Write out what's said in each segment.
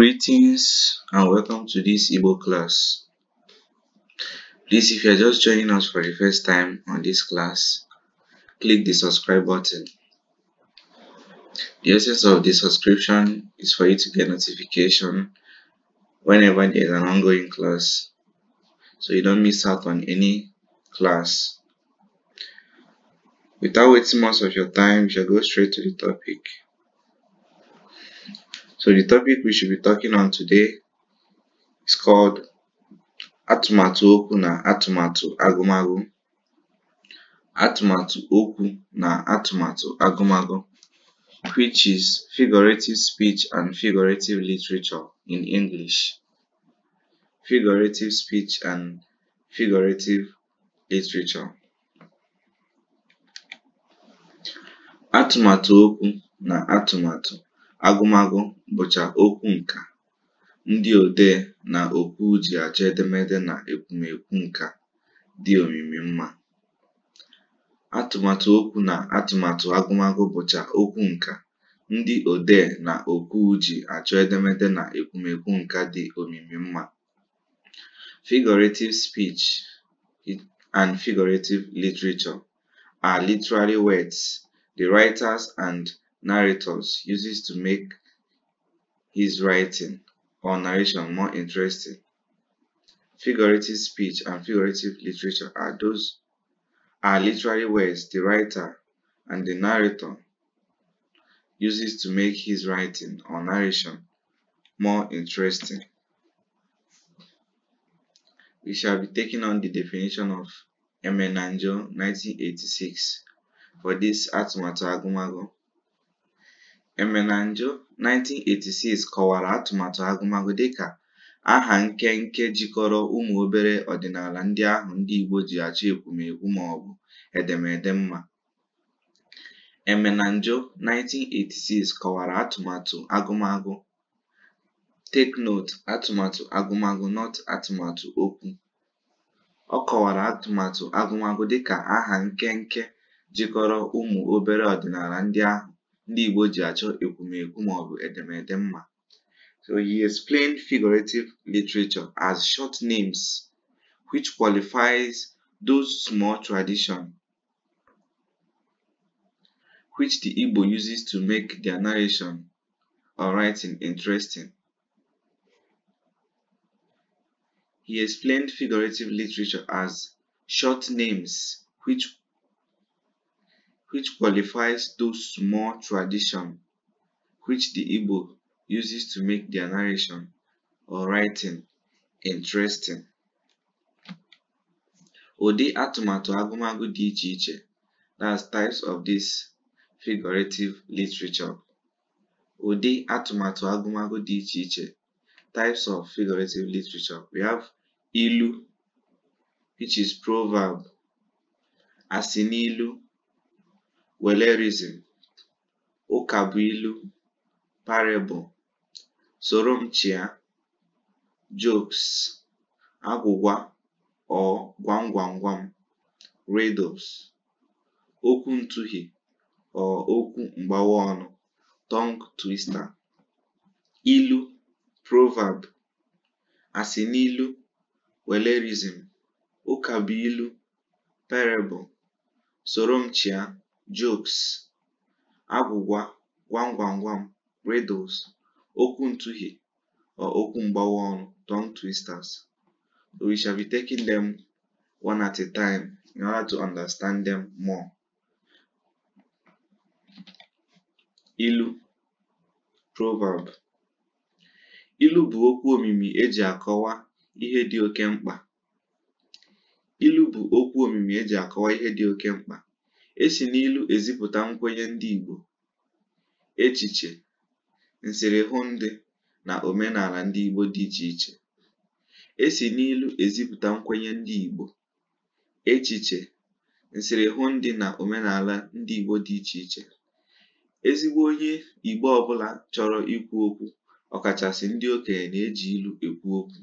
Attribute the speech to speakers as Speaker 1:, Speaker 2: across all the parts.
Speaker 1: Greetings and welcome to this Igbo class. Please, if you are just joining us for the first time on this class, click the subscribe button. The essence of the subscription is for you to get notification whenever there is an ongoing class so you don't miss out on any class. Without wasting much of your time, you shall go straight to the topic. So the topic we should be talking on today is called atụmatụ okwu na atụmatụ agụmagụ. Atụmatụ na atụmatụ agụmagụ, which is figurative speech and figurative literature in English. Figurative speech and figurative literature. Atụmatụ okwu na atụmatụ Agụmagụ bụcha okwu nkà. Ndị odee na okwu ji achọ edemede na ekwumekwu nkà dị omimi mma. Atụmatụ okwu na atụmatụ agụmagụ bụcha okwu nkà. Ndị odee na okwu ji achọ edemede na ekwumekwu nkà dị omimi mma. Figurative speech and figurative literature are literary words the writers and narrators uses to make his writing or narration more interesting. Figurative speech and figurative literature are those are literary words the writer and the narrator uses to make his writing or narration more interesting. We shall be taking on the definition of Emenanjo 1986 for this Atmato Agumago. Emenanjo, 1986, kọwara atụmatụ agụmagụ dịka “aha nkenke jikọrọ ụmụ obere ọdịnala ndị ahụ ndị Igbo ji achọ ekwumekwu maọbụ edemede mma.” Emenanjo, 1986, kọwara atụmatụ agụmagụ Take Note atụmatụ agụmagụ nọt atụmatụ okwu. Ọ kọwara atụmatụ agụmagụ dịka “aha nkenke jikọrọ ụmụ obere ọdịnala ndị ahụ ndị Igbo ji achọ ekwumekwu edemede mma. So he explained figurative literature as short names which qualifies those small tradition which the Igbo uses to make their narration or writing interesting. He explained figurative literature as short names which which qualifies those small tradition which the Igbo uses to make their narration or writing interesting. Odi atụmatụ agụmagụ dị iche that's types of this figurative literature. Odi atụmatụ agụmagụ dị iche types of figurative literature. We have ilu which is proverb, asinilu Welerism, Ụkabụilu, Parable, Soro m Jokes, Agwụgwa or Gwam Riddles, Okwu ntughi or Okwu mgbawa ọnụ, Tongue Twister, Ilu, Proverb, Asịnilu, Welerism, Ụkabụilu, Parable, Soro m jokes, agwụgwa, gwam gwam gwam, riddles, okwu ntughi or okwu mgbawa ọnụ tongue twisters. We shall be taking them one at a time in order to understand them more. Ilu proverb ilu bụ okwu omimi eji akọwa ihe dị oke mkpa ilu bụ okwu omimi eji akọwa ihe dị oke mkpa Esi n'ilu ezipụta nkwenye ndị Igbo, echiche, nsịrị na omenala ndị Igbo dị iche iche. Esi nkwenye ndị Igbo, echiche, na omenala ndị Igbo dị iche iche. Ezigbo onye Igbo ọbụla chọrọ ikwu okwu ọkachasị ndị okenye na-eji ilu ekwu okwu.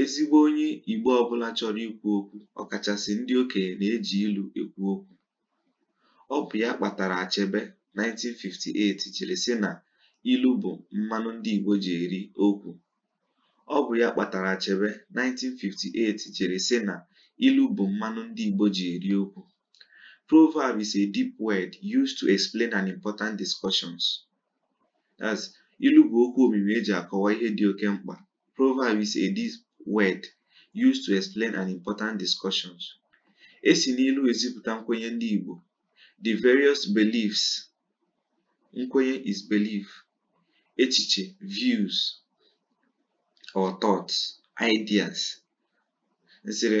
Speaker 1: Ezigbo onye Igbo ọbụla chọrọ ikwu okwu ọkachasị ndị okenye na-eji ilu ekwu okwu. Ọ bụ ya kpatara Achebe (1958) jiri sị na ilu bụ mmanụ ndị Igbo ji eri okwu. Ọ bụ (1958) jiri na ilu bụ mmanụ ndị Igbo ji eri okwu. Proverb is a deep word used to explain an important discussions. As ilu bụ okwu omimi eji akọwa ihe dị oke mkpa. Proverb is a deep word used to explain an important discussion. E ezipụta nkwenye ndị Igbo. The various beliefs. Nkwenye is belief. Echiche, views or thoughts, ideas. Nsere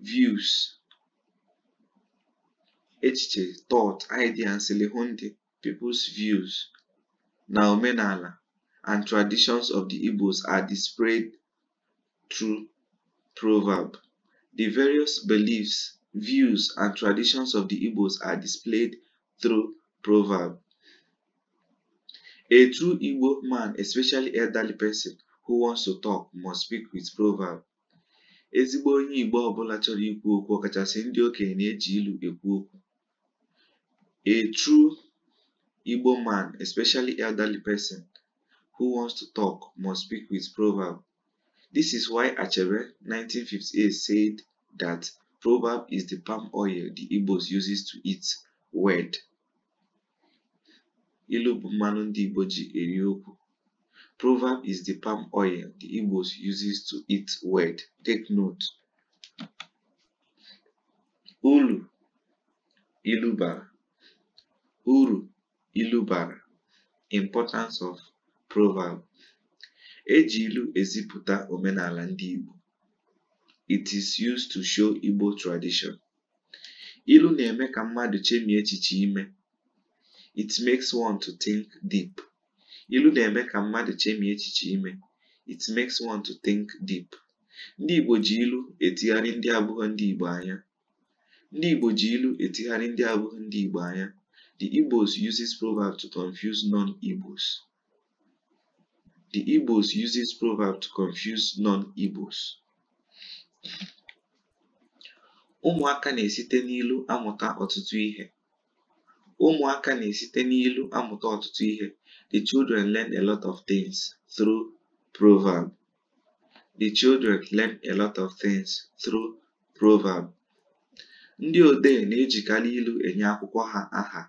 Speaker 1: views. Echiche, thought, idea, nsele people's views na omenala and traditions of the Igbos are displayed through proverb. The various beliefs, views, and traditions of the Igbos are displayed through proverb. A true Igbo man, especially elderly person who wants to talk, must speak with proverb. Ezigbo onye Igbo ọbụla chọrọ ikwu okwu ọkachasị ndị okenye na-eji ilu ekwu okwu. A true Igbo man, especially elderly person who wants to talk, must speak with proverb. This is why Achebe 1958 said that proverb is the palm oil the Igbos uses to eat word. Ilu bụ mmanụ Proverb is the palm oil the Igbos uses to eat word. Take note. Ulu Iluba. Uru ilu Importance of proverb. Eji ilu eziputa omenala ndị Igbo. It is used to show Igbo tradition. Ilu na-eme ka mmadụ chemie echiche ime. It makes one to think deep. Ilu chemie It makes one to think deep. Ndị Igbo ji ilu etigharị ndị abụghị ndị Igbo anya. Ndị Igbo ilu ndị ndị anya. The Igbos uses proverb to confuse non-Igbos. The Igbos use this proverb to confuse non-Igbos. Ụmụaka na-esite n'ilu amụta ọtụtụ ihe. Ụmụaka na-esite n'ilu amụta ọtụtụ ihe. The children learn a lot of things through proverb. The children learn a lot of things through proverb. Ndị odee na-ejikarị ilu enye akwụkwọ ha aha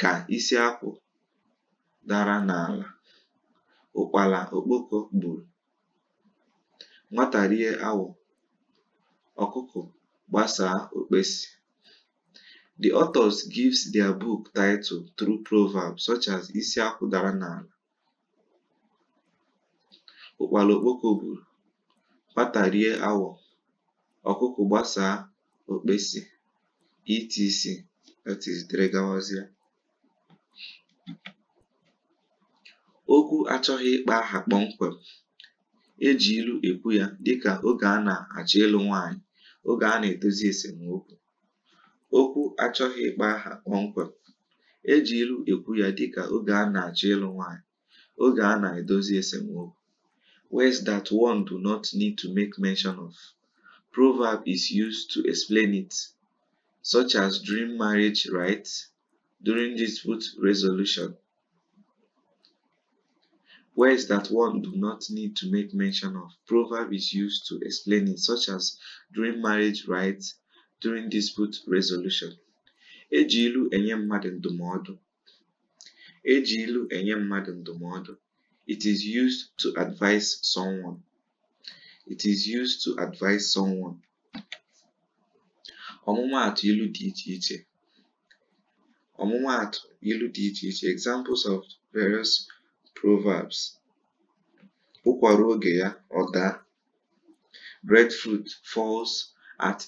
Speaker 1: ka isi akwụ dara n'ala. ụkpala okpoko gburu. Nwata rie awọ, ọkụkọ gbasaa okpesi. The authors gives their book title through proverbs such as Isi Akwụ dara n'ala, ụkpala okpoko gburu, nwata rie awọ, ọkụkọ gbasaa okpesi etc. that is Okwu achọghị ịkpa aha kpọmkwem eji ilu ekwu ya dịka oge a na-achọ ịlụ nwaanyị, oge a na-edozi esemokwu. Okwu achọghị ịkpọ aha kpọmkwem e ilu ekwu ya dịka oge a na-achọ ịlụ nwaanyị, oge a na-edozi esemokwu. Words that one do not need to make mention of. Proverb is used to explain it, such as during marriage rites, during dispute resolution, Words that one do not need to make mention of. Proverb is used to explain it, such as during marriage rites, during dispute resolution. Eji enye mmadụ ndụmọdụ. Eji ilu enye mmadụ ndụmọdụ. It is used to advise someone. It is used to advise someone. Ọmụmaatụ ilu dị iche iche. Ọmụmaatụ ilu dị Examples of various Proverbs: “Ụkwara oge ya, ọ daa; breadfruit falls falls at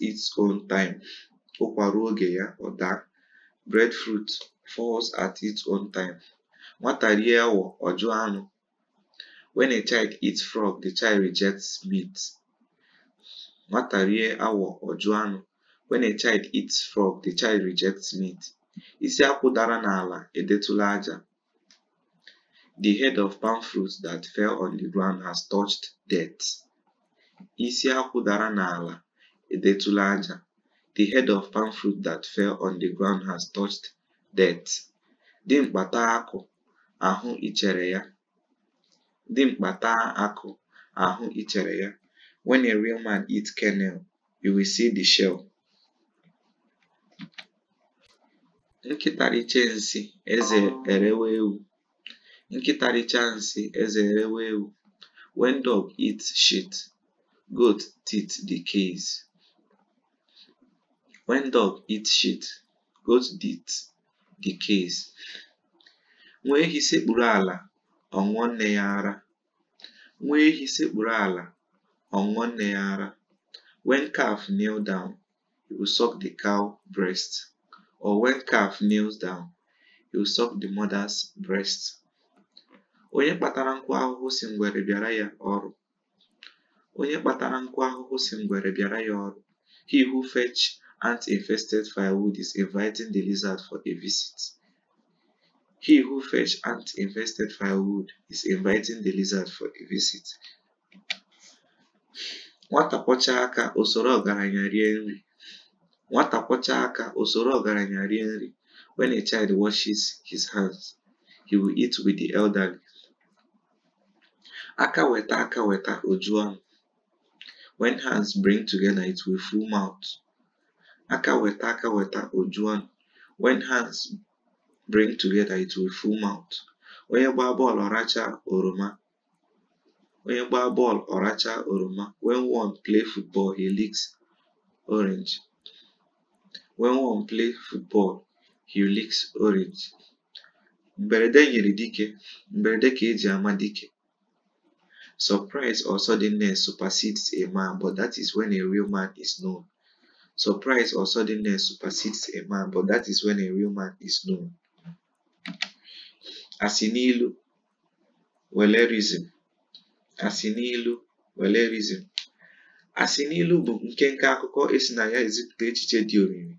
Speaker 1: its own time. Nwata rie awọ, ọ anụ. When a child eats frog, the child rejects meat. Nwata rie a child dara n'ala edetụla aja. The head of palm fruit that fell on the ground has touched death. Isi akwụ dara n'ala edetụla aja. The head of palm fruit that fell on the ground has touched death. Dimkpa taa akụ, ahụ ichere ya. Dimkpa taa akụ, ahụ ichere ya. When a real man eats kernel, you will see the shell. Nkịta richaa nsị, eze erewe ewu. nkịtarichansị eze erewe ewu when dog eats shit goat teeth decays when dog eats shit goat teeth decays nwa ehi sekpuru ala ọṅụọ nne ya ara nwa ehi sekpuru ala ọṅụọ nne ya ara when calf kneel down he will suck the cow breast or when calf kneels down he will suck the mother's breast Onye kpatara nkụ ahụhụ si ngwere bịara ya ọrụ. Onye kpatara nkụ ahụhụ si ngwere bịara ya ọrụ. He who fetch ant-infested firewood is inviting the lizard for a visit. He who fetch ant-infested firewood is inviting the lizard for a visit. Nwata kwọchaa aka osoro ọgaranya rie nri. Nwata kwọchaa aka osoro ọgaranya rie nri. When a child washes his hands, he will eat with the elderly. Aka weta aka weta oju juo wen When bring together it will full mouth. Onye gbaa bọọlụ ọrachaa oroma. Onye oroma. When one play football he licks orange. Mberede nyere dike, mberede ka eji ama dike. Surprise or suddenness supersedes a man, but that is when a real man is known. a man, but that is a real man is known. Asinilu Asinilu akụkọ esi na ya ezipụta echiche dị omimi.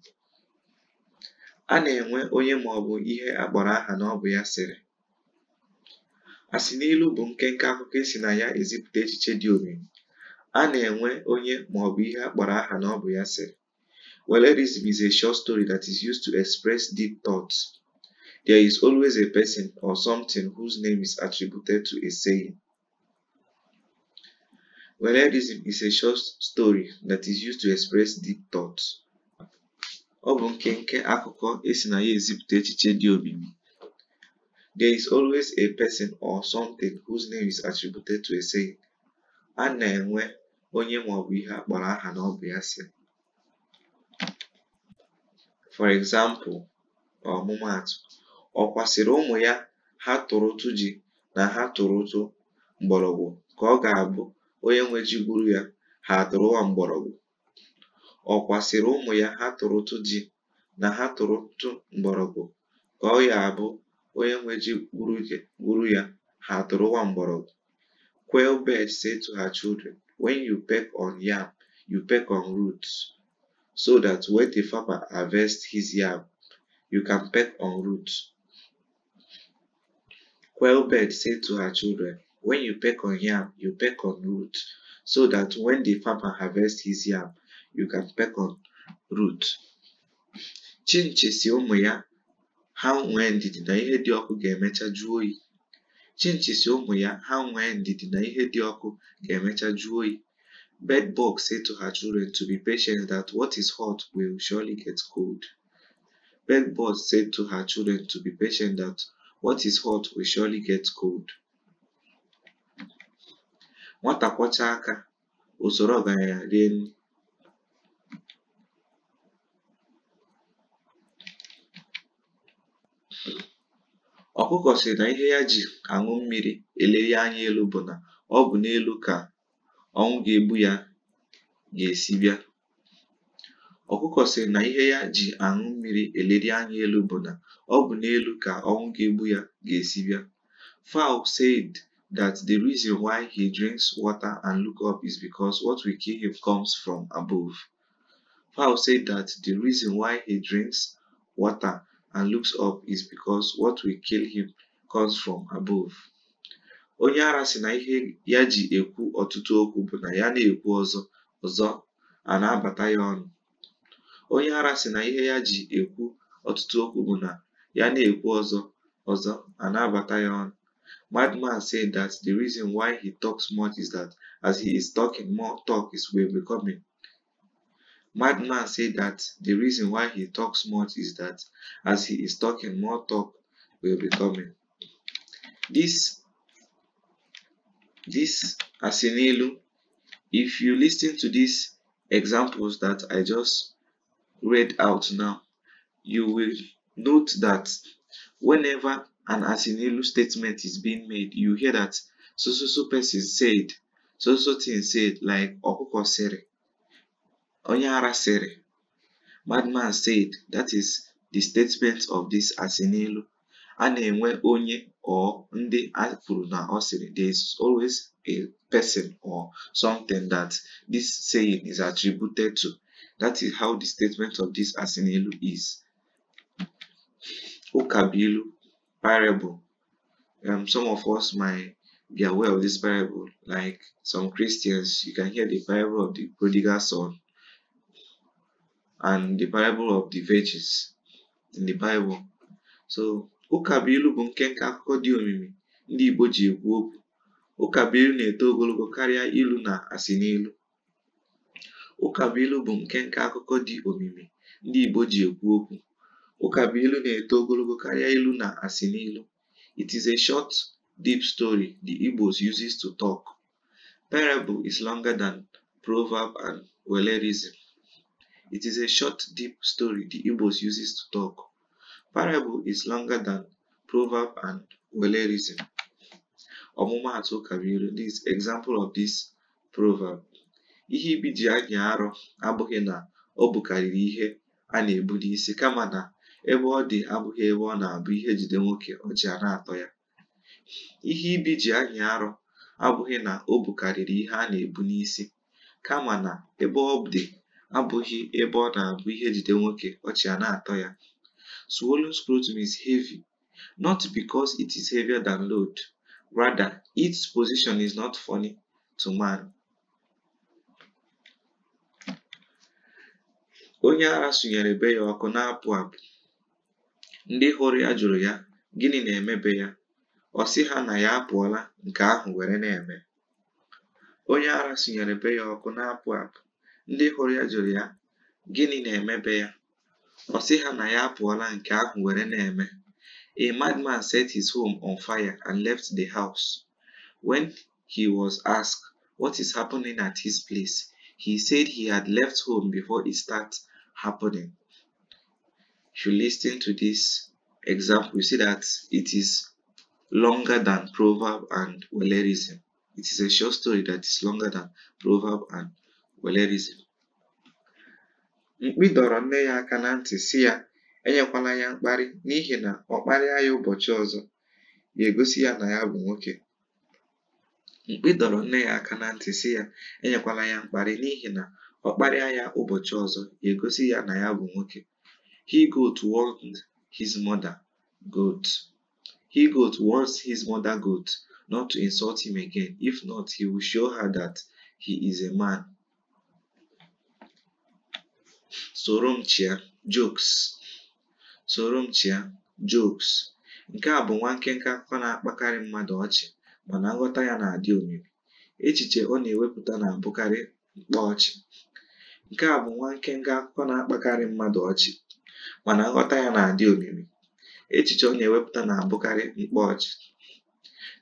Speaker 1: A na-enwe onye ma ọ bụ ihe akpọrọ aha na ọ bụ ya sịrị a sị ilu bụ nkenke akụkọ esi na ya ezipụta echiche dị omimi a na-enwe onye maọbụ ihe a kpọrọ aha na ọ bụ ya sịrị Wellerism is a short story that is used to express deep thoughts. There is always a person or something whose name is attributed to a saying. Wellerism is a short story that is used to express deep thoughts. Ọ bụ nkenke akụkọ esi na ya ezipụta echiche dị omimi There is always a person or something whose name is attributed to a saying. A na-enwe onye maọbụ ihe akpọrọ aha na ọ bụ ya si. For example, ọmụmaatụ, ọ kwasịrị ụmụ ya ha tụrụ ụtụ ji na ha tụrụ ụtụ mgbọrọgwụ ka ọ ga-abụ onye nwe ji gburu ya ha atụrụwa mgbọrọgwụ. Ọ kwasịrị ụmụ ya ha tụrụ ụtụ ji na ha tụrụ ụtụ mgbọrọgwụ ka ọ ya abụ onye nwe gwuru ya ha mgbọrọgwụ quail bird say to her children when you peck on yam you peck on roots so that when the farmer harvests his yam you can peck on roots quail bird said to her children when you peck on yam you peck on roots so that when the farmer harvests his yam you can peck on roots chinchi si ụmụ ya ha nwee ndidi na ihe dị ọkụ ga-emecha jụọ oyi chinchisi ụmụ ya ha nwee ndidi na ihe dị ọkụ ga-emecha jụọ oyi said to her children to be patient that what is hot will surely get cold. Nwata kwọcha aka usoro ọgaranya rie Ọkụkọ sị na ihe ya ji aṅụ mmiri eleri anya elu bụ na ọ bụ n'elu ka ọnwụ ga-egbu ya ga-esi bịa. Ọkụkọ sị na ihe ya ji aṅụ mmiri eleri anya elu bụ na ọ bụ n'elu ka ọnwụ ga-egbu ya ga-esi bịa. Fowl said that the reason why he drinks water and look up is because what we kill him comes from above. Fowl said that the reason why he drinks water and looks up is because what will kill him comes from above. Onye ara si na ihe ya ji ekwu ọtụtụ okwu bụ na ya na-ekwu ọzọ ọzọ a na-abata ya ọnụ. Onye ara sị na ihe ya ji ekwu ọtụtụ okwu bụ na ya na-ekwu ọzọ ọzọ a na-abata ya ọnụ. Madman said that the reason why he talks much is that as he is talking, more talk is will be coming. Madman said that the reason why he talks much is that as he is talking, more talk will be coming. This, this asinilo. if you listen to these examples that I just read out now, you will note that whenever an asinilo statement is being made, you hear that so so so person said, so so thing said, like Okuko Sere. Onyara Madman said, that is the statement of this Asinilu. A na onye or ndị a kwuru there is always a person or something that this saying is attributed to. That is how the statement of this Asinilu is. Okabilu parable. Um, some of us might be aware of this parable, like some Christians, you can hear the parable of the prodigal son and the parable of the virgins in the Bible. So ụkabụilu bụ nkenke akụkọ dị omimi ndị Igbo ji ekwu okwu ụkabụilu na-eto ogologo karịa ilu na asịnilu ụkabụilu bụ nkenke akụkọ dị omimi ndị Igbo ji ekwu okwu ilu na-eto ogologo karịa ilu na n'ilu. It is a short, deep story the Igbos uses to talk. Parable is longer than proverb and wellerism. It is a short, deep story the Igbos uses to talk. Parable is longer than proverb and wellerism. Ọmụmaatụ kabiri this example of this proverb. Ihe ibi ji anya arọ abụghị na ọ bụkarịrị ihe a na-ebu n'isi kama na ebe ọ dị abụghị ebe ọ na-abụ ihe jide nwoke ọjị na-atọ ya. Ihe ibi ji anya arọ abụghị na ọ bụkarịrị ihe a na-ebu n'isi kama na ebe ọ dị abụghị ebe ọ na-abụ ihe jide nwoke ọchị a na-atọ ya swallow's scrotum is heavy not because it is heavier than load rather its position is not funny to man onye ara sụnyere be ya ọkụ na-apụ apụ ndị hụrụ ya jụrụ ya gịnị na-emebe ya ọ sị ha na ya apụọla nke ahụ were na-eme onye ara sụnyere be ya ọkụ na-apụ apụ ndị hụrụ ya jụrụ ya gịnị na-emebe ya ọ sị ha na ya apụọla nke ahụ were na-eme a madman set his home on fire and left the house when he was asked what is happening at his place he said he had left home before it start happening if you listen to this example you see that it is longer than proverb and wellerism it is a short story that is longer than proverb and were mkpi dọrọ nne ya aka na ntị si ya enyekwala ya mkparị n'ihi na ọ kparịa ya ụbọchị ọzọ ya egosi ya na ya bụ nwoke egosi ya na ya bụ nwoke he goat warned his mother goat he his mother goat not to insult him again if not he will show her that he is a man soro m chịa jokes soro m chịa jokes nke a bụ nwa nkenke akụkọ na-akpakarị mmadụ ọchị mana nghọta ya na-adị omimi echiche ọ na-ewepụta na-abụkarị mkpa ọchị nke a bụ nwa nkenke akụkọ na-akpakarị mmadụ ọchị mana nghọta ya na-adị omimi echiche ọ na-ewepụta na-abụkarị mkpa ọchị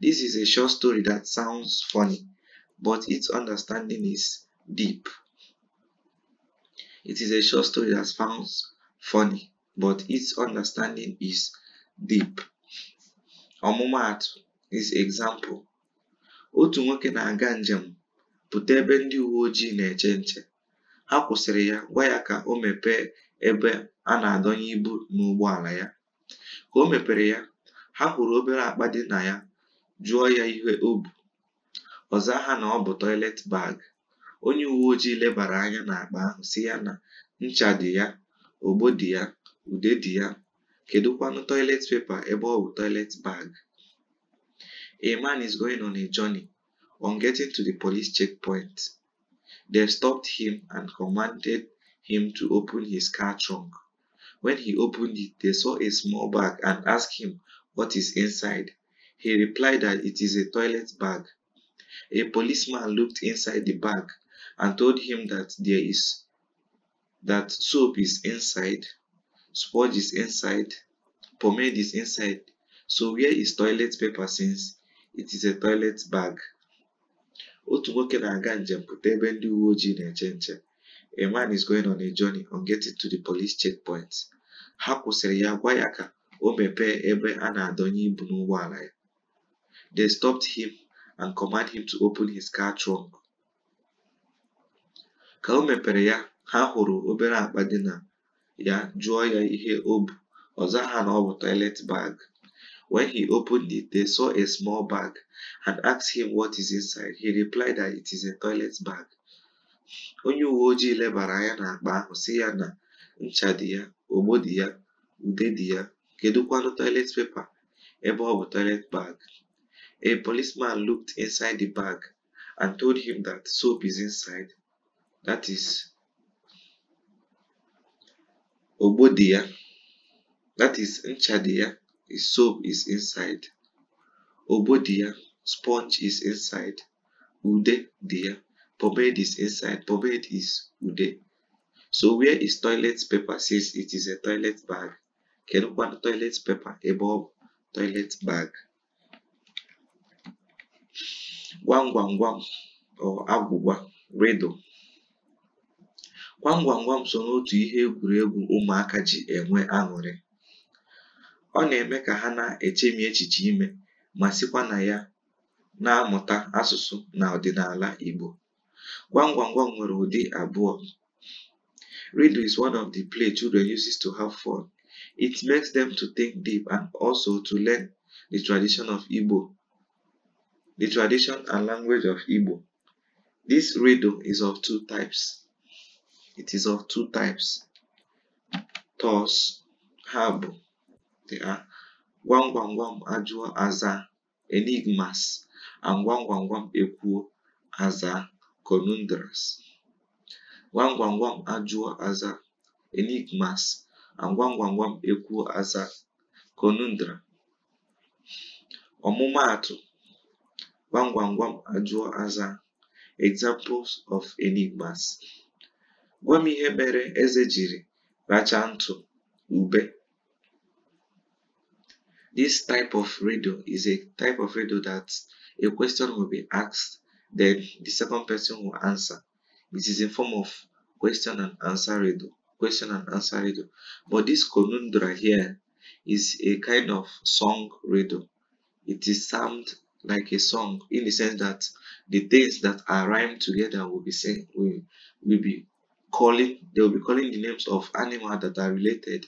Speaker 1: This is a short story that sounds funny, but its understanding is deep. It is a short story that sounds funny, but its understanding is deep. Ọmụmaatụ is example. Otu nwoke na-aga njem pụta ebe ndị uwe ojii na-eche nche. Ha kwụsịrị ya gwa ya ka o mepee ebe a na-adọnye ibu n'ụgbọala ya. Ka o mepere ya, ha hụrụ obere akpa dị na ya jụọ ya ihe o bu. ọza ha na ọ bụ toilet bag. onye uwe ojii lebara anya n'akpa ahụ si ya na ncha dị ya ogbo dị ya ude dị ya kedụkwanụ toilet paper ebe ọ bụ toilet bag a man is going on a journey on getting to the police checkpoint they stopped him and commanded him to open his car trunk when he opened it they saw a small bag and asked him what is inside he replied that it is a toilet bag a policeman looked inside the bag and told him that there is that soap is inside, sponge is inside, pomade is inside. So where is toilet paper since it is a toilet bag? otu nwoke na-aga njem pụta ebe ndị uwe ojii na-eche nche a man is going on a journey on getting to the police checkpoint ha kwụsịrị ya gwa ya ka o mepee ebe a na-adọnye ibu n'ụgbọala ya they stopped him and command him to open his car trunk Ka o mepere ya, ha hụrụ obere akpa dị na ya jụọ ya ihe o bu, ha zagha na ọ bụ toilet bag. When he opened it, they saw a small bag and asked him what is inside. He replied that it is a toilet bag. Onye uwe ojii lebara anya n'akpa ahụ si ya na ncha dị ya, ogbo dị ya, ude dị ya, kedụkwanụ toilet paper ebe ọ bụ toilet bag. A policeman looked inside the bag and told him that soap is inside that is ogbo that is ncha dị soap is inside ogbo sponge is inside ude dia pomade is inside pomade is ude so where is toilet paper since it is a toilet bag can kedụkwa toilet paper above toilet bag gwam gwam gwam or agwụgwa riddle gwam so n'otu ihe egwuregwu ụmụaka ji enwe aṅụrị ọ na-eme ka ha na-echemi echiche ime ma sikwa na ya na-amụta asụsụ na ọdịnala Igbo gwam gwam nwere ụdị abụọ Rido is one of the play children uses to have fun it makes them to think deep and also to learn the tradition of Igbo and language of Igbo this riddle is of two types It is of two types. Thus, ha bụ they are gwam gwam ajụọ aza enigmas and gwam gwam gwam ekwuo aza conundrums. Gwam gwam ajụọ aza enigmas and gwam gwam gwam ekwuo aza conundrum. Ọmụmaatụ gwam gwam ajụọ aza examples of enigmas. Gwa m ihe mere eze jiri ntụ ube. This type of radio is a type of radio that a question will be asked, then the second person will answer. It is in form of question and answer radio. Question and answer radio. But this conundra here is a kind of song radio. It is sound like a song in the sense that the things that are rhymed together will be sing, will, will be calling they will be calling the names of animals that are related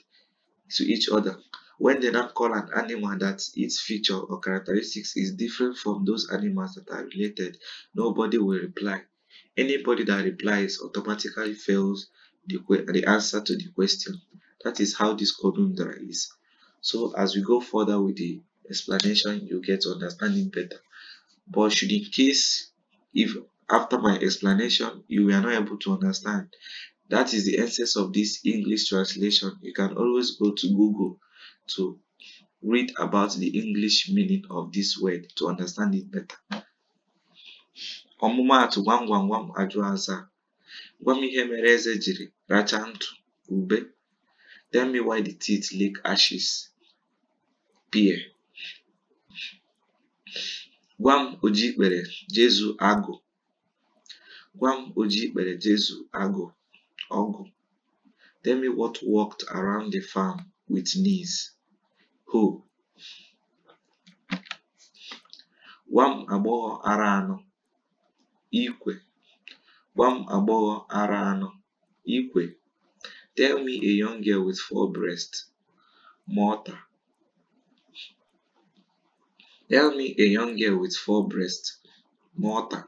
Speaker 1: to each other when they now call an animal that its feature or characteristics is different from those animals that are related nobody will reply anybody that replies automatically fails the, the answer to the question that is how this conundrum is so as we go further with the explanation you get understanding better but should in case if after my explanation, you were not able to understand. That is the essence of this English translation. You can always go to Google to read about the English meaning of this word to understand it better. ọmụmaatụ gwam gwam gwam ajụ aza gwa m ihe mere eze jiri rachaa ntụ ube tell me why the teeth leak ashes Pierre. gwa m oji ikpere jezu agụ Gwa m oji ikpere Jesu agụ ọgụ. Tell me what worked around the farm with knees. Ho. Gwa m agbọghọ ara anọ. Ikwe. Gwa m agbọghọ ara Ikwe. Tell me a young girl with four breasts. Mọta. Tell me a young girl with four Mọta.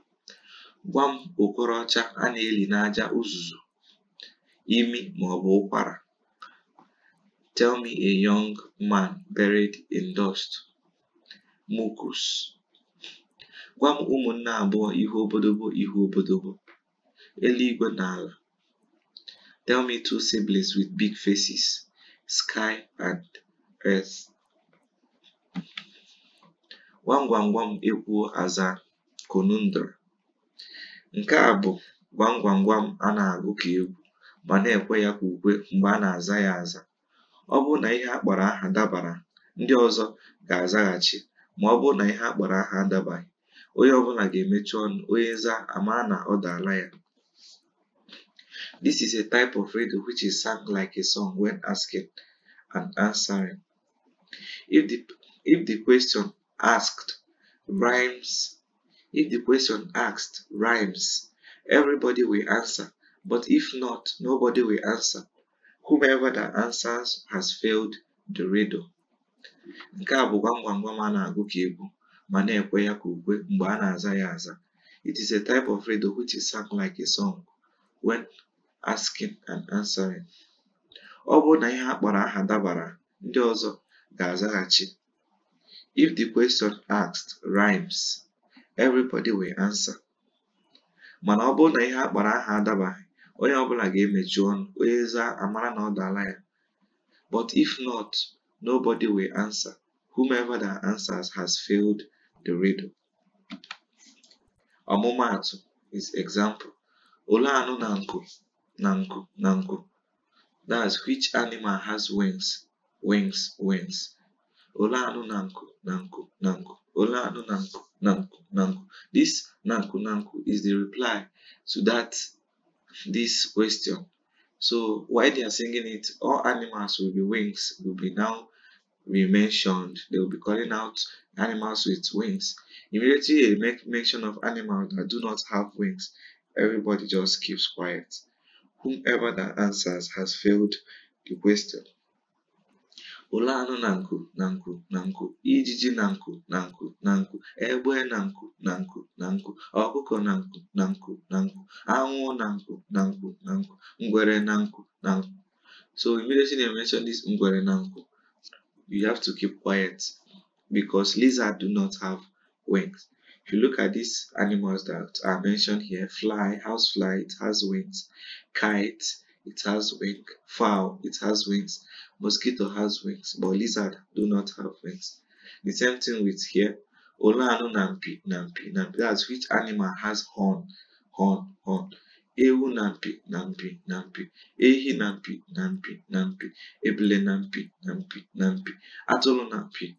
Speaker 1: Gwa m okorocha a na-eli n'aja uzuzu, imi maọbụ ụkwara. Tell me a young man buried in dust. Mucus. Gwa m ụmụnne abụọ ihu obodobo ihu obodobo. Eluigwe na ala. Tell me two siblings with big faces. Sky and earth. Gwam gwam gwam ekwuo aza conundrum. Nke a bụ gwam gwam gwam a na-agụ ka egwu ma na-ekwe ya ka ukwe mgbe a na-aza ya aza. Ọ bụrụ na ihe a kpọrọ aha dabara, ndị ọzọ ga-azaghachi ma ọ bụrụ na ihe a kpọrọ aha adabaghị, onye ọbụla ga-emechi ọnụ onye za a mara na ọ daala ya. This is a type of radio which is sung like a song when asking and answering. If the if the question asked rhymes If the question asked rhymes, everybody will answer. But if not, nobody will answer. Whomever that answers has failed the riddle. Nke a bụ gwam gwam na-agụ ka egwu ma na-ekwe ya ka ukwe mgbe a na-aza ya aza. It is a type of riddle which is sung like a song when asking and answering. Ọ bụrụ na ihe a kpọrọ aha dabara, ndị ọzọ ga-azaghachi. If the question asked rhymes, everybody will answer mana ọ bụrụ na ihe a kpọrọ aha adabaghị onye ọbụla ga-emechi ọnụ onye zaa amara na ọ dala ya but if not nobody will answer whomever that answers has failed the riddle ọmụmaatụ is example ole anụ na nku na nku na nku that's which animal has wings wings wings ole anụ na nku na nku na nku Ola oh, no nanku, nanku, nanku. This nanku, nanku is the reply to that, this question. So while they are singing it, all animals with the wings will be now be mentioned. They will be calling out animals with wings. Immediately, a make mention of animals that do not have wings. Everybody just keeps quiet. Whomever that answers has failed the question ụlọ anụ na nku na nku na nku ijiji na nku na nku na nku egbe na nku na nku na nku ọkụkọ na nku na nku na nku anwụ na nku na nku na nku ngwere na nku na nku so immediately they mention this ngwere na nku you have to keep quiet because lizards do not have wings if you look at these animals that are mentioned here fly housefly it has wings kite it has wings. Fowl, it has wings. Mosquito has wings, but lizard do not have wings. The same thing with here. anu nampi, nampi, nampi. That's which animal has horn, horn, horn. Ewu nampi, nampi, nampi. Ehi nampi, nampi, nampi. Eble nampi, nampi, nampi. Atolo nampi.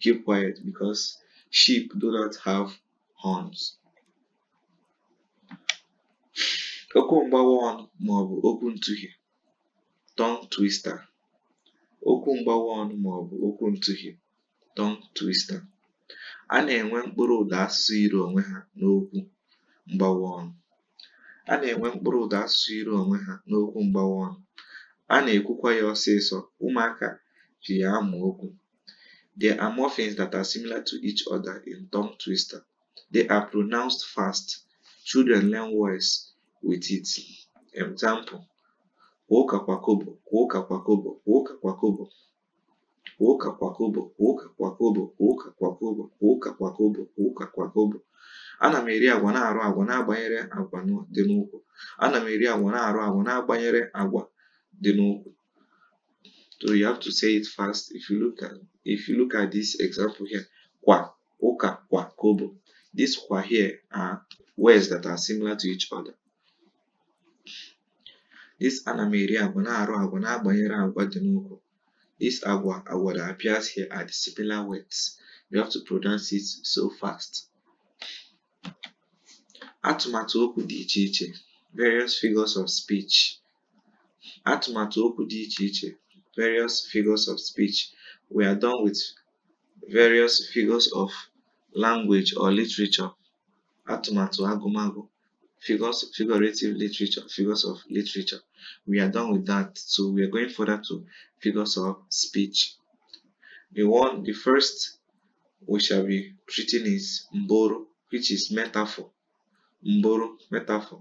Speaker 1: Keep quiet because sheep do not have horns. okwu mgbawa ọnụ màọbụ okwu ntụhie tongue twister okwu mgbawa ọnụ màọbụ okwu ntụhie tongue twister a na-enwe mkpụrụ ụda asụsụ iri onwe ha n'okwu mgbawa ọnụ a na-enwe mkpụrụ ụda asụsụ onwe ha n'okwu mgbawa ọnụ a na-ekwukwa ya ọsịsọ ụmụaka ji ya amụ okwu There are that are similar to each other in tongue twister. They are pronounced fast. Children learn words with it. Example, Woka kwa kobo, woka kwa kobo, woka kwa kobo, Woka kwa kobo, woka kwa kobo, woka kwa kobo, woka kwa kobo, woka kwa kobo. Ana m eri agwa na-arụ agwa na-agbanyere agwa dị n'ụkwụ. Ana m eri agwa na-arụ agwa na-agbanyere agwa dị n'ụkwụ. So you have to say it fast. If you look at if you look at this example here, kwa, oka kwa, kobo. This kwa here are words that are similar to each other. This Anamiri Agwa na-arụ agwa na-agbanyere agwa dị n'okwu. This agwa agwa that appears here are the similar words. You have to pronounce it so fast. Atụmatụ okwu dị iche iche. Various figures of speech. Atụmatụ okwu dị iche iche. Various figures of speech. We are done with various figures of language or literature. Atụmatụ agụmagụ figures figurative literature figures of literature we are done with that so we are going further to figures of speech The one, the first we shall be treating is mboro which is metaphor mboro metaphor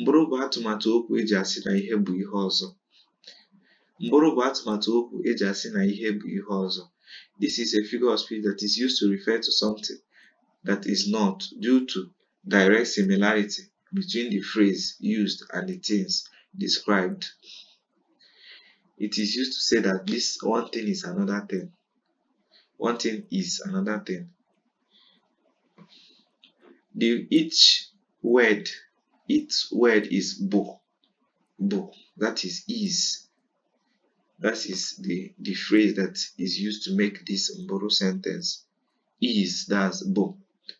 Speaker 1: mboro bụ atụmatụ okwu eji asị na ihe bụ ihe ọzọ mboro bụ atụmatụ okwu eji asị na ihe bụ ihe ọzọ this is a figure of speech that is used to refer to something that is not due to direct similarity between the phrase used and the things described. It is used to say that this one thing is another thing. One thing is another thing. The, each word, each word is bo. Bo. That is is. That is the, the phrase that is used to make this Mboro sentence. Is, that's bo.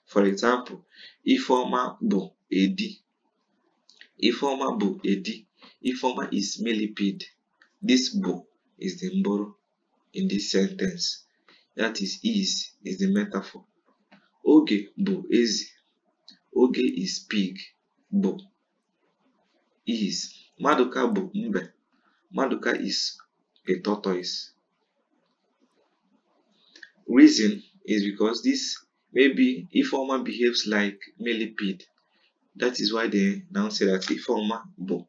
Speaker 1: For example, Ifoma bo edi ifeoma bụ edi ifeoma is millipede this bụ is the mboro in this sentence that is is is the metaphor oge bụ is oge is pig bụ is maduka bụ mbe maduka is a tortoise reason is because this maybe ifeoma behaves like millipede that is why they now say that Ifeoma bo,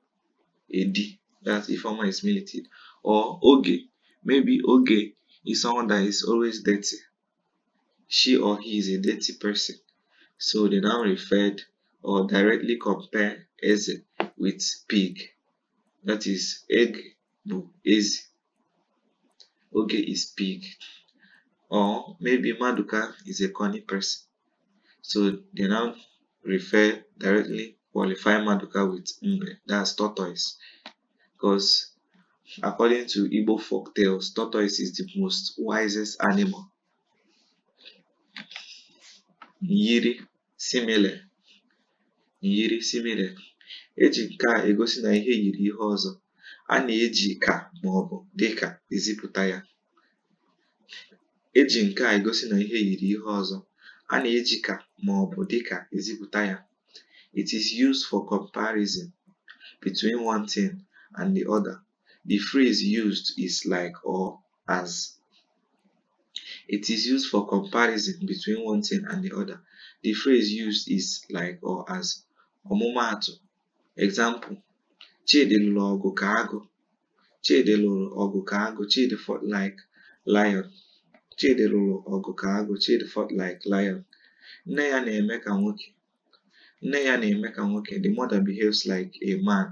Speaker 1: Edi, that Ifeoma is militant, Or Oge, maybe Oge is someone that is always dirty. She or he is a dirty person. So they now referred or directly compare Eze with pig. That is egg bo Eze. Oge is pig. Or maybe Maduka is a corny person. So they now refer directly qualify Maduka with Mbe, that's tortoise. Because according to Igbo folk tales, tortoise is the most wisest animal. Nyiri simile. Nyiri simile. Eji nke a egosi na ihe yiri ihe ọzọ. A na-eji ka ma ọ bụ dịka eziputa ya. Eji nke a egosi na ihe yiri ihe ọzọ. a na-eji ka ma dịka ezipụta ya it is used for comparison between one thing and the other the phrase used is like or as it is used for comparison between one thing and the other the phrase used is like or as ọmụmaatụ example chidi lụrụ ọgụ ka agụ chidi lụrụ ọgụ ka agụ chidi fought like lion Chidi lụrụ ọgụ ka agụ Chidi fought like lion. Nne ya na-eme ka nwoke. Nne ya na-eme ka nwoke. The mother behaves like a man.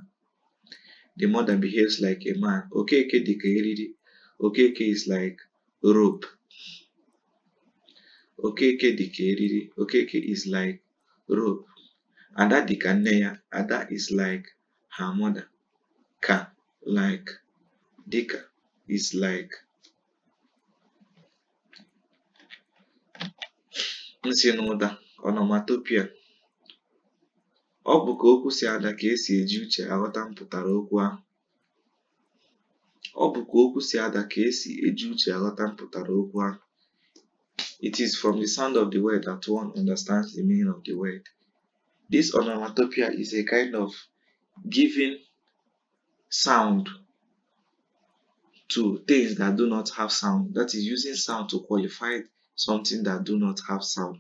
Speaker 1: The mother behaves like a man. Okeke dị ka eriri. Okeke is like rope. Okeke dị ka eriri. Okeke is like rope. Ada dị ka nne ya. Ada is like her mother. Ka like dịka is like nsịnụda onomatopoeia ọ bụ ka okwu si ada ka esi eji uche aghọta mpụtara okwu ahụ ọ bụ ka okwu si ada ka esi eji uche aghọta mpụtara okwu ahụ It is from the sound of the word that one understands the meaning of the word. This onomatopoeia is a kind of giving sound to things that do not have sound. That is using sound to qualify something that do not have sound.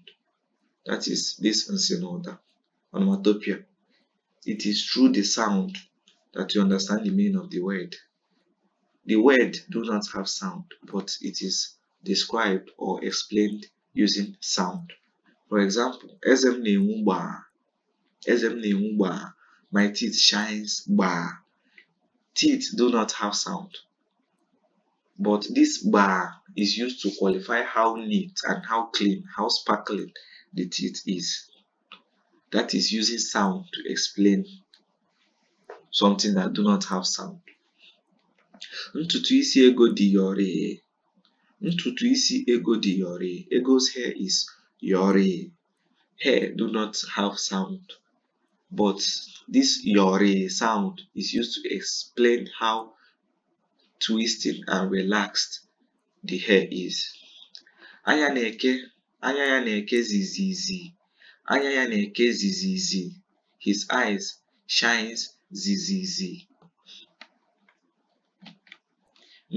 Speaker 1: That is this insinota, onomatopoeia. It is through the sound that you understand the meaning of the word. The word do not have sound, but it is described or explained using sound. For example, Ezem Neumba. Ezem Neumba. My teeth shines. Ba. Teeth do not have sound, but this bar is used to qualify how neat and how clean, how sparkling the teeth is. That is using sound to explain something that do not have sound. Ntutu isi ego dị yọrị. Ntutu isi ego dị yore. Ego's hair is yore. Hair do not have sound, but this yore sound is used to explain how twisted and relaxed the hair is. Anya na-eke Anya ya na-eke zizizi. Anya ya na-eke zizizi. His eyes shines zizizi.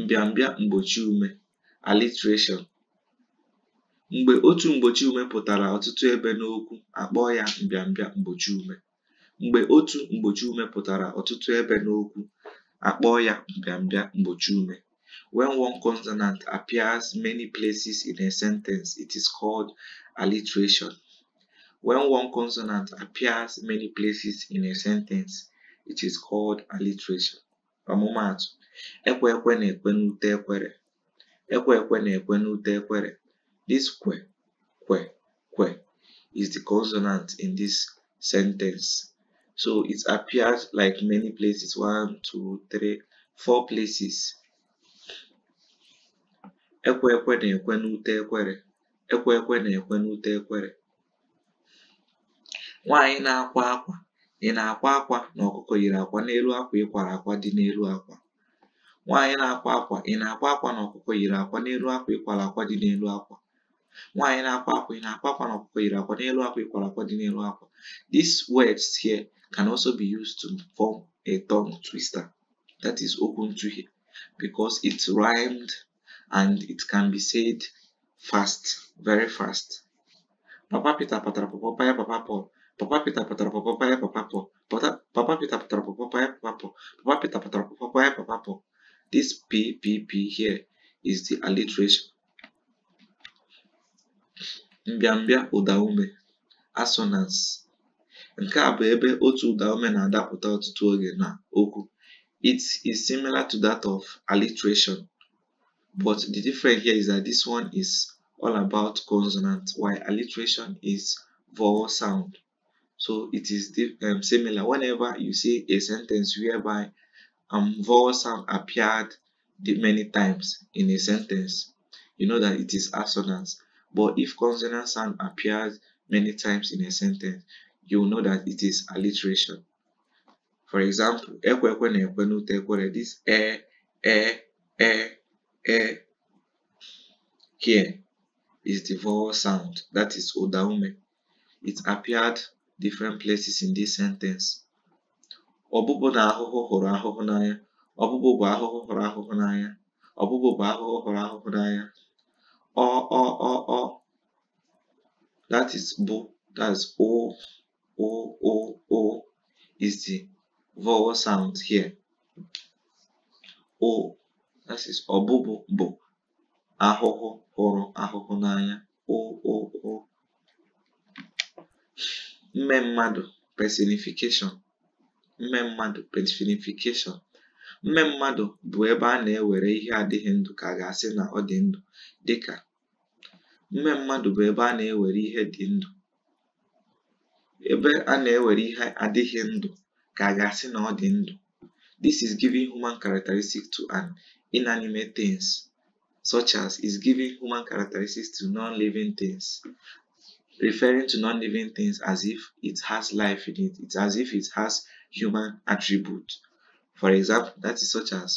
Speaker 1: Mbịambịa mgbochi ume alliteration. Mgbe otu mgbochi ume pụtara ọtụtụ ebe n'okwu, akpọọ ya mbịambịa mgbochi ume. Mgbe otu mgbochi ume pụtara ọtụtụ ebe n'okwu, akpọọ ya mbịambịa mgbochi ume. When one consonant appears many places in a sentence, it is called alliteration. When one consonant appears many places in a sentence, it is called alliteration. Ọmụmaatụ, ekwe ekwe na-ekwe n'ute ekwere. Ekwe ekwe na-ekwe n'ute ekwere. This kwe, kwe, kwe is the consonant in this sentence. so it appears like many places one two three four places ekwe ekwe na-ekwe ekwere ekwe ekwe na-ekwe ekwere nwaanyị na-akwa akwa ị na-akwa akwa na ọkụkọ yiri akwa n'elu akwa ịkwara akwa dị n'elu akwa nwaanyị na here can also be used to form a tongue twister that is open to okuntuhe because it's rhymed and it can be said fast, very fast. Papa pita Patrapopo papa papa Papa papa pita Paya papa Papa papa Patrapopo Paya Papapo, Papa papa papa papa pita Peter papa papa papa. This P P P here is the alliteration. Mbiambia Udaume, assonance. Nke a bụ ebe otu ụdaume na-adapụta ọtụtụ oge na okwu. It is similar to that of alliteration, but the difference here is that this one is all about consonant, while alliteration is vowel sound. So it is um, similar. Whenever you see a sentence whereby um, vowel sound appeared many times in a sentence, you know that it is assonance. But if consonant sound appears many times in a sentence, you know that it is alliteration. For example, ekwekwe na ekwenute ekwere, this e, e, e, e here is the vowel sound, that is odaume. It appeared different places in this sentence. Ọbụbụ na ahụhụ hụrụ ahụhụ n'anya. Ọbụbụ bụ ahụhụ hụrụ ahụhụ n'anya. Ọbụbụ bụ ahụhụ hụrụ ahụhụ n'anya. Ọ, ọ, ọ, ọ. That is bụ, that is ọ O, O, O is the vowel sound here. O, that is bụ ahụhụ hụrụ ahụhụ n'anya. O, O, O. Mme mmadụ personification. Mme mmadụ personification. Mme mmadụ bụ ebe a na-ewere ihe adịghị ndụ ka a ga-asị na ọ dị ndụ dịka mme mmadụ bụ ebe a na-ewere ihe dị ndụ ebe a na-ewere ihe adịghị ndụ ka a ga-asị na ọ dị ndụ this is giving human characteristics to an inanimate things such as is giving human characteristics to non-living things referring to non-living things as if it has life in it it's as if it has human attribute for example that is such as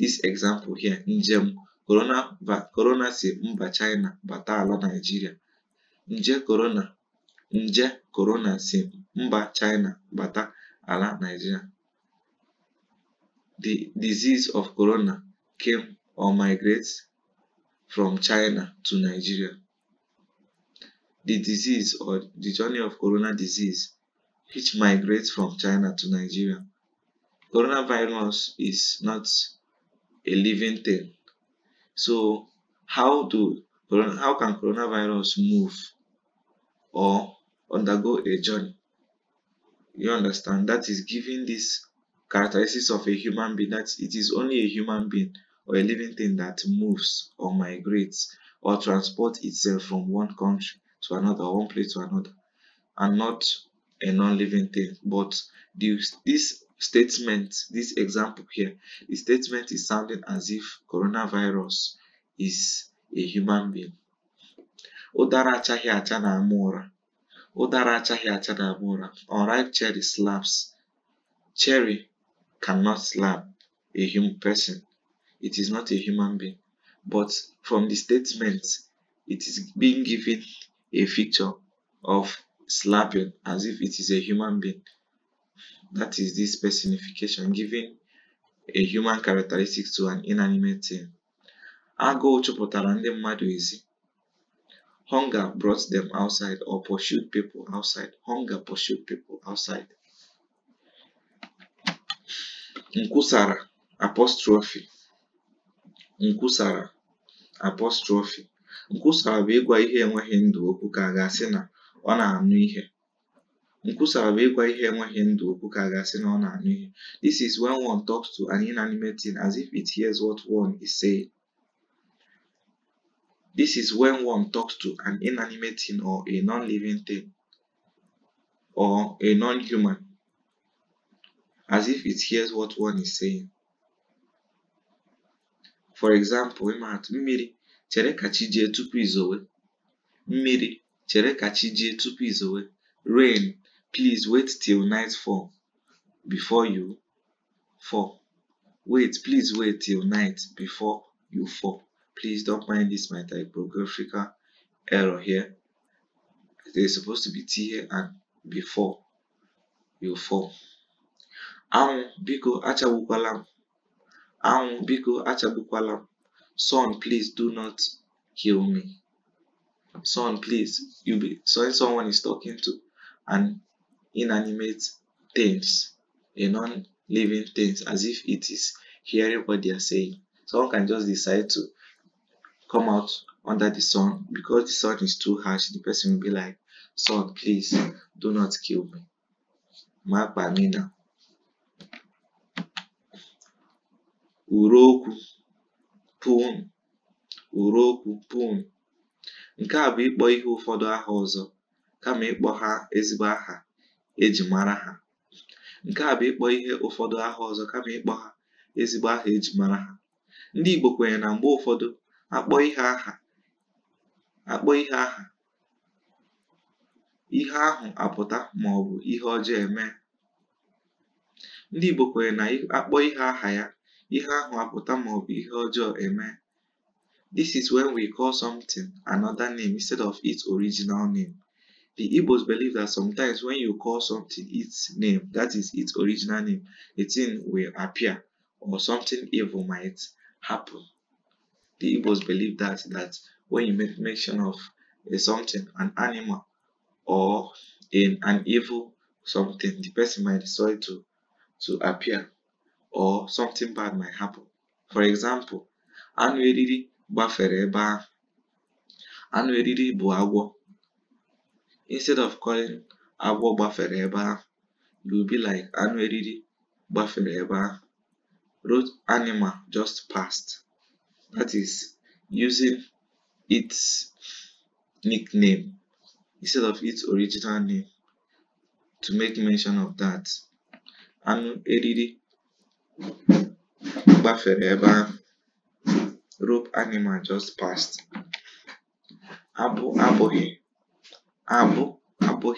Speaker 1: this example here njem corona corona si mba China bata ala Nigeria nje corona nje si mba China bata ala The disease of corona came or migrates from China to Nigeria. The disease or the journey of corona disease which migrates from China to Nigeria. Coronavirus is not a living thing. So how do how can coronavirus move or undergo a journey. You understand? That is giving this characteristics of a human being that it is only a human being or a living thing that moves or migrates or transports itself from one country to another, one place to another, and not a non-living thing. But this statement, this example here, the statement is sounding as if coronavirus is a human being. Udaracha Hiachanamura, unripe cherry slaps. Cherry cannot slap a human person. It is not a human being. But from the statement, it is being given a picture of slapping as if it is a human being. That is this personification, giving a human characteristics to an inanimate thing. Ago chụpụtara ndị mmadụ ezi Hunger brought them outside or pursued people outside. Hunger pursued people outside. Nkusara, apostrophe. Nkusara, apostrophe. Nkusara bụ ịgwa ihe enweghị ndụ okwu ka a ga-asị na ọ na-anụ ihe. Nkusara bụ ịgwa ihe enweghị ndụ okwu ka a ga-asị na ọ na-anụ ihe. This is when one talks to an inanimate thing as if it hears what one is saying. This is when one talks to an inanimate thing or a non-living thing or a non-human as if it hears what one is saying. For example, ịmaatụ mmiri chere ka chi tupu izowe. Mmiri chere tupu izowe. Rain, please wait till night fall before you fall. Wait, please wait till night before you fall please don't mind this my typographical error here there's supposed to be t here and before you fall anwụ biko achagbukwala m anwụ biko achagbukwala m son please do not kill me son please you be so when someone is talking to an inanimate things a non-living things as if it is hearing what they are saying someone can just decide to come out under the sun because the sun is too harsh the person will be like sun please do not kill me ma kpa me now uruokwu pun uruokwu pun nke a bụ ịkpọ ihe ụfọdụ aha ọzọ kama ịkpọ ha ezigbo aha eji mara ha nke a bụ ịkpọ ihe ụfọdụ aha ọzọ kama ịkpọ ha ezigbo aha eji mara ha ndị Igbo kwenyere na mgbe ụfọdụ akpọ ihe aha akpọ ihe aha ihe ahụ apụta maọbụ ihe ọjọọ eme ndị Igbo kwere na akpọ ihe aha ya ihe ahụ apụta maọbụ ihe ọjọọ eme This is when we call something another name instead of its original name. The Igbos believe that sometimes when you call something its name, that is its original name, the thing will appear or something evil might happen. the Igbos believe that that when you make mention of a something, an animal or in an evil something, the person might decide to to appear or something bad might happen. For example, anụ eriri gbafere ebe Anụ eriri bụ agwọ. Instead of calling agwọ gbafere you will be like anụ eriri gbafere Road animal just passed that is using its nickname instead of its original name to make mention of that anụ eriri gbafere rope animal just passed abụ abụghị abụ abu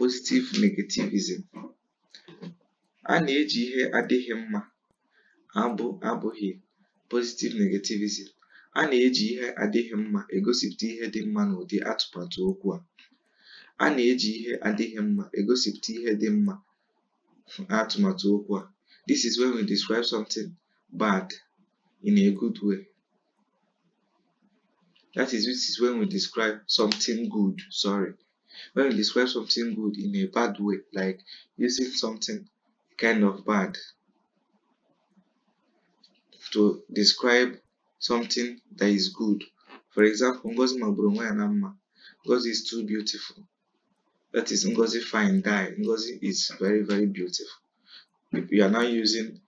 Speaker 1: positive negativism a na-eji ihe adịghị mma abụ abụghị Positive Negativism: A na-eji ihe adịghị mma egosipụta ihe dị mma n'ụdị atụmatụ okwu a. A na-eji ihe adịghị mma egosipụta ihe dị mma n'atụmatụ okwu a. This is when we describe something bad in a good way. That is this is when we describe something good, sorry. When we describe something good in a bad way, like using something kind of bad to describe something that is good. For example, Ngozi magburu nwa Ngozi is too beautiful. That is Ngozi fine guy. Ngozi is very very beautiful. You are now using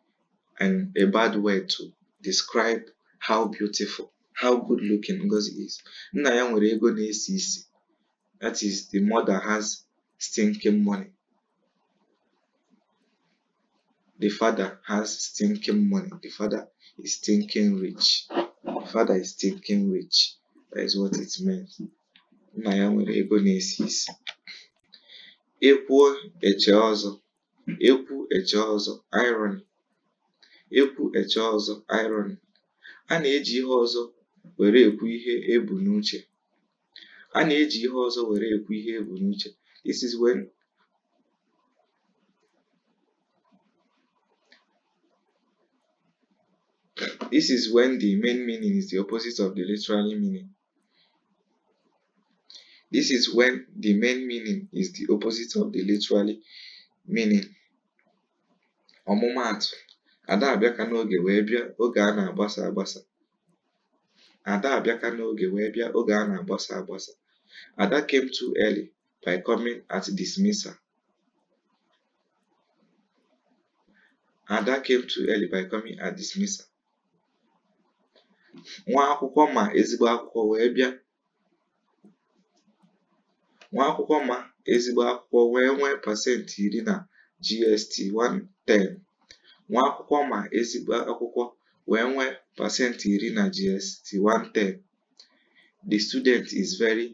Speaker 1: an, a bad word to describe how beautiful, how good looking Ngozi is. Nna ya nwere That is the mother has stinking money. The father has stinking money. The father is stinking rich. The father is stinking rich. That is what it means. Nna ya nwere ego na-esi isi. Ekwuo eche ọzọ. Ekwu eche ọzọ Iron Ekwu eche ọzọ Iron A na-eji ihe ọzọ were ekwu ihe ebu n'uche. A na-eji ihe ọzọ were ekwu ihe ebu n'uche. This is when This is when the main meaning is the opposite of the literally meaning. This is when the main meaning is the opposite of the literally meaning. Ọmụmaatụ, Ada abịaka n'oge wee bịa oge a na-agbasa agbasa. Ada abịaka n'oge wee bịa oge a na-agbasa agbasa. Ada came too early by coming at dismissal. Ada came too early by coming at dismissal. nwa akwụkwọ ma ezigbo akwụkwọ wee bịa nwa akwụkwọ ma ezigbo akwụkwọ wee nwee pasentị iri na GST 110 nwa akwụkwọ ma ezigbo akwụkwọ wee nwee pasentị iri na GST 110 the student is very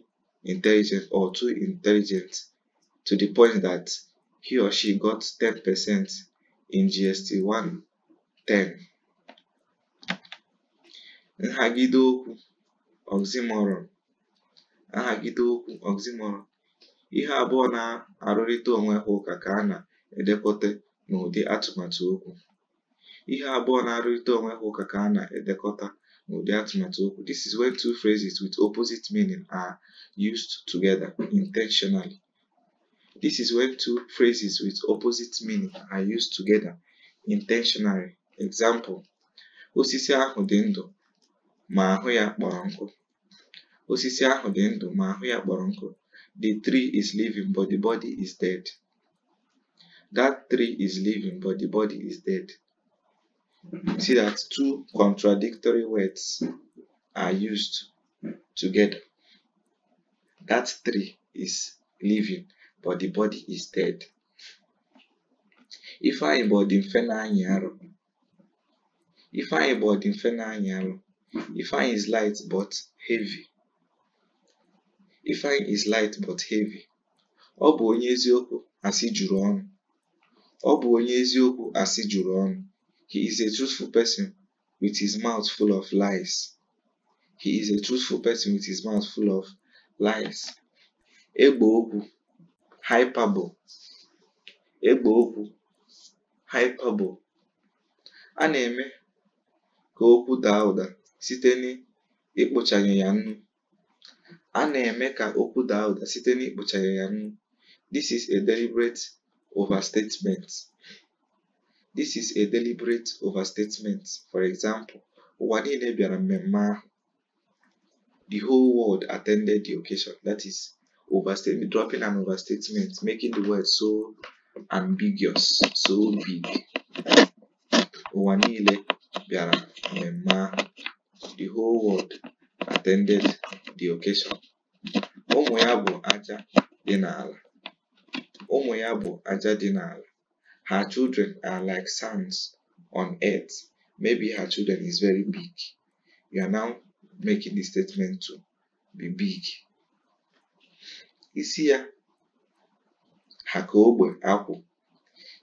Speaker 1: intelligent or too intelligent to the point that he or she got 10% in GST 110 nhagide okwu oxymoron nhagide okwu oxymoron ihe abụọ na-arụrịta onwe ha ụka ka a na-edekọta n'ụdị atụmatụ okwu ihe abụọ na-arụrịta onwe ha ụka ka a na-edekọta n'ụdị atụmatụ okwu this is when two phrases with opposite meaning are used together intentionally this is when two phrases with opposite meaning are used together intentionally example osisi ahụ dị ndụ ma ahụ ya kpọrọ nkụ. Osisi ahụ dị ndụ ma ahụ ya kpọrọ nkụ. The tree is living but the body is dead. That tree is living but the body is dead. See that two contradictory words are used together. That tree is living, but the body is dead. If I body mfe na anyị arụ. If I body mfe na anyị arụ. Ifeanyi is light but heavy. Ifeanyi is light but heavy. Ọ bụ onye eziokwu asị juru ọnụ. Ọ bụ onye eziokwu asị juru ọnụ. He is a truthful person with his mouth full of lies. He is a truthful person with his mouth full of lies. Egbe okwu hyperbole. Egbe okwu hyperbole. A na-eme ka okwu daa ụda site ya nnu. A na-eme ka okwu daa ụda site ya nnu. This is a deliberate overstatement. This is a deliberate overstatement. For example, ụwa niile bịara mmemme ahụ. The whole world attended the occasion. That is overstatement, dropping an overstatement, making the word so ambiguous, so big. ụwa niile bịara mmemme ahụ the whole world attended the occasion. Ụmụ ya ájá dị n'ala. ájá dị Her children are like sands on earth. Maybe her children is very big. You are now making the statement to be big. Isia ya ha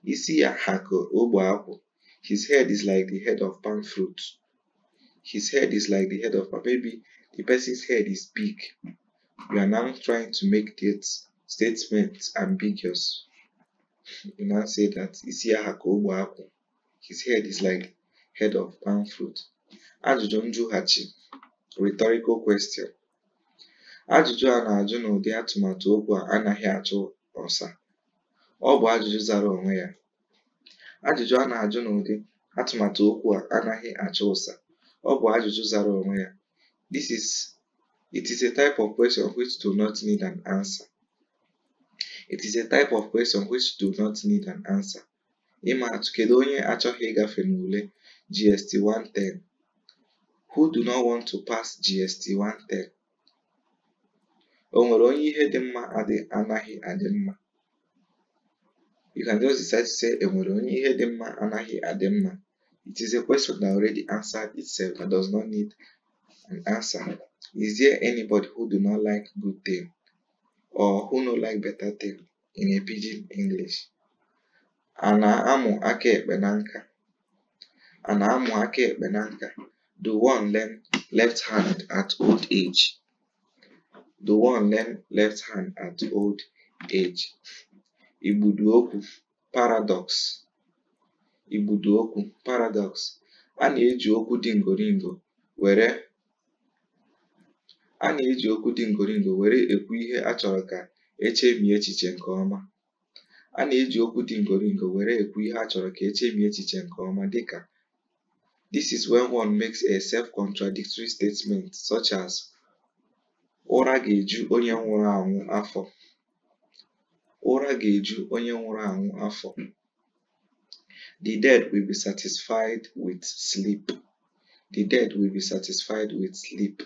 Speaker 1: Isia ogbe akwụ. Isi His head is like the head of palm fruit his head is like the head of, a baby. the person's head is big. You are now trying to make this statement ambiguous. You now say that Isiahakobuaku, his head is like head of palm fruit. Ajụjụ Hachi, rhetorical question. Ajụjụ a na-ajụ n'ụdị atụmatụ okwu a anaghị achụ ọsa. Ọ bụ ajụjụ zara onwe ya. Ajụjụ a na-ajụ n'ụdị atụmatụ okwu a anaghị achụ ụsa. ọ bụ ajụjụ zara onwe ya. This is it is a type of question which do not need an answer. It is a type of question which do not need an answer. Ịma atụ kedu onye achọghị ịgafe n'ule GST 110? Who do not want to pass GST 110? O nwere onye ihe dị mma anaghị adị mma? You can just decide to say e nwere onye ihe dị mma anaghị adị mma. It is a question that already answered itself and does not need an answer. Is there anybody who do not like good thing or who no like better thing in a pidgin English? Ana amu ake ekpe Ana amu ake ekpe Do one learn left hand at old age? Do one learn left hand at old age? Igbudu a paradox. okwu (Paradox): A na-eji okwu dị ngoringo were a na-eji okwu dị ngoringo were ekwu ihe a chọrọ ka e chemie echiche nke ọma. A na-eji okwu dị ngoringo were ekwu ihe a chọrọ ka e chemie echiche nke ọma dịka This is when one makes a self-contradictory statement such as "Ụra ga-eju onye nwụrụ anwụ afọ." The dead will be satisfied with sleep. The dead will be satisfied with sleep.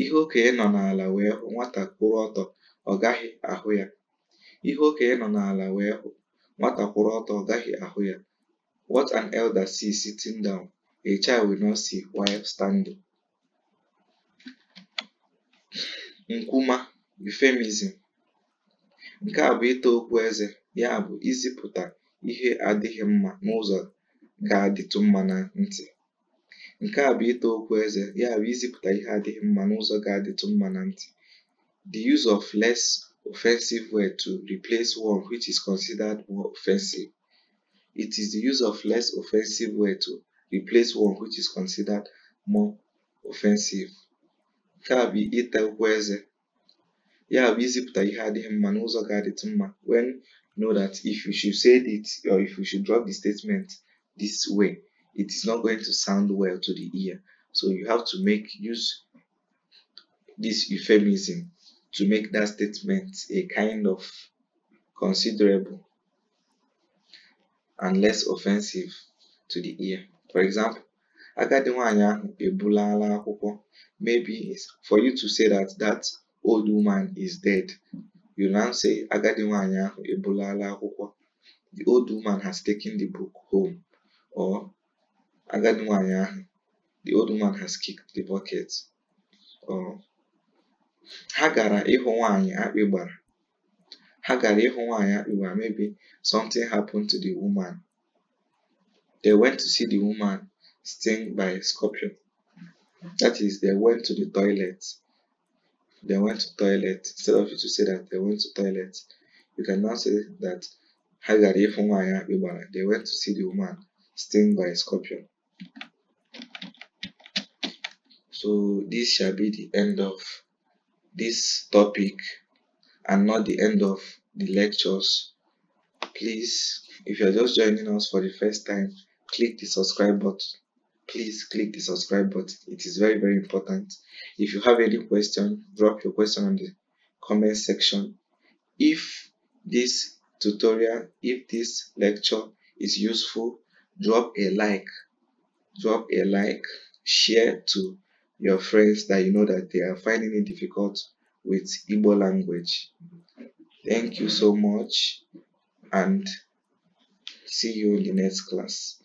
Speaker 1: Ihe okenye nọ n'ala wee hụ nwata kwụrụ ọtọ ọ gaghị ahụ ya. Ihe okenye nọ n'ala wee hụ nwata kwụrụ ọtọ ọ gaghị ahụ ya. What an elder sees sitting down, a child will not see while standing. Nkwuma euphemism. Nke a bụ ịta okwu eze, ya bụ izipụta ihe adịghị mma n'ụzọ ga-adịtụ mma na ntị. Nke a bụ ịta okwu eze, ya bụ izipụta ihe adịghị mma n'ụzọ ga-adịtụ mma na ntị. The use of less offensive word to replace one which is considered more offensive. It is the use of less offensive word to replace one which is considered more offensive. Nke a bụ ịta okwu eze, ya bụ izipụta ihe adịghị mma n'ụzọ ga-adịtụ mma when know that if you should say it or if you should drop the statement this way, it is not going to sound well to the ear. So you have to make use this euphemism to make that statement a kind of considerable and less offensive to the ear. For example, agadi nwanyị Maybe for you to say that that old woman is dead now say agadi nwaanyị ahụ ebulala akwụkwọ. The old woman has taken the book home. Or agadi nwaanyị ahụ the old woman has kicked the bucket. Or ha gara ịhụ nwaanyị akpị gbara. Ha gara ịhụ akpị gbara maybe something happened to the woman. They went to see the woman stung by a scorpion. That is, they went to the toilet they went to toilet instead of you to say that they went to toilet you can now say that they went to see the woman stung by a scorpion so this shall be the end of this topic and not the end of the lectures please if you're just joining us for the first time click the subscribe button please click the subscribe button it is very very important if you have any question drop your question on the comment section if this tutorial if this lecture is useful drop a like drop a like share to your friends that you know that they are finding it difficult with Igbo language thank you so much and see you in the next class